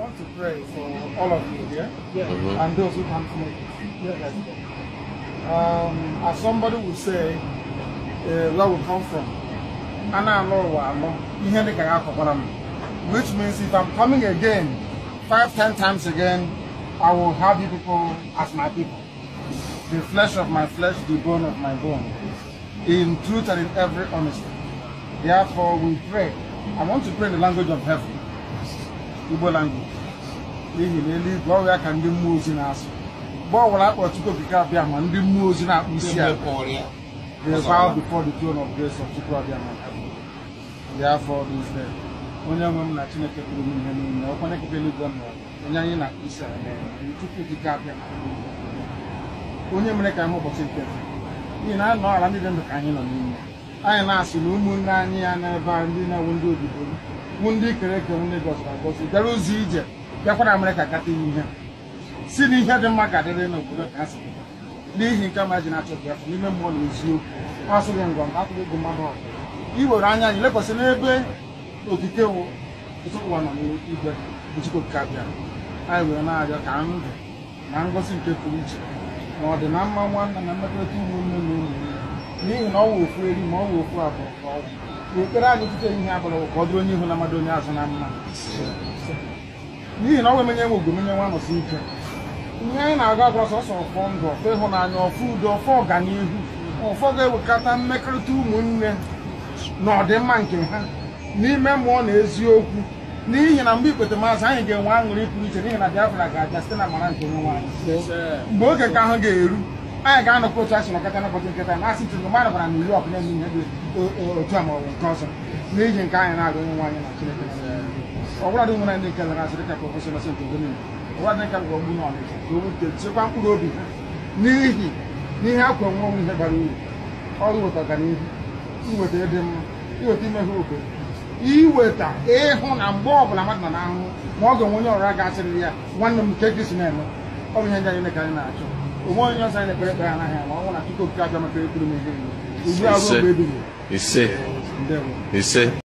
want to pray for all of you here yeah? mm -hmm. and those who can't make it. Um, as somebody would say, uh, where we come from, which means if I'm coming again, five, ten times again, I will have you people as my people. The flesh of my flesh, the bone of my bone, in truth and in every honesty. Therefore, we pray. I want to pray in the language of heaven. igbo language n'ihi na eluigwe ya ka ndị mmụọ ozi na-asụ mgbe ọ bụla akpọchukwu okike abịa ma ndị mmụọ ozi na-akpụ isi a bow before the throne of grace onye nwe na Chineke pụrụ m ihe niile ọkwa onye eluigwe onye anyị na isi ala onye mere ka anyị ụbọchị nke n'ihi na nọ ala ndị dị ndụ ka anyị nọ n'ime anyị na-asị na ụmụnne anyị ya n'ebe a ndị na ewu ndị obodo wụ ndị kere eke m Lagos na Lagos bịara ụzọ ije bịakwara Amerịka gata ihe si na ihe dị mma ka adịrị n'obodo ka asị n'ihi nke ma e ji na-achọghị afọ n'ime mmụọ na eziokwu asịghị ngwa m atụghị gị mmadụ ọbụla iwere anya anyị lekwasị n'ebe okike wụ ụwa nọ n'igwe Chukwuka bịara anyị wee na-arịọ ka ndụ na ngọzi nke pụrụ iche na ọdịna mma nwanna na mmekọrịta ụmụnne na ụmụnne n'ihi na ọ ofu eri ma ọ ofu abụọ ekpere anyị tutere ihe abụrụ ka ọ onye ihu na mmadụ onye azụ na mma n'ihi na ọ nwe menye menye nwa ike ihe anyị na-agụ agwa sọsọ ọfọ ndụ ọfọ ịhụnanya ọfọ udo ọfọ ọganihu ọfọ ga-ewekọta mmekọrịta ụmụnne na ọdịmma nke ha n'ime mmụọ na eziokwu n'ihi na mgbe ikpete maazị anyị ga-enwe aṅụrị pụrụ iche n'ihi na Biafra ga-abịa site na mara nke nwe anyị mgbe oge nke ahụ ga-eru anyị ga-anọkọ otu asị nọkọta n'ụbọchị nketa na asị ntụrụ mmadụ bara na iri ọkụ na-eme ihe dị otu a ma nke ọzọ n'ihi nke anyị na-aga onye nwaanyị na Chineke ọbụladị ndị nke lara ka ofesi nọsị mkpụrụ obi ha n'ihi akwa nwe onwe ihe bara uru ọrụ weta ọganihu iweta ịhụ na mgbe ọbụla mmadụ nọ n'ahụhụ ma ọ ga-enwe onye ọrịa ga ya nwanne m nke na-eme ọ bụ ihe ndị anyị na-achọ ụmụ onye ọzọ na-ekpere ka ya anaghị ama ọnwụ na tupu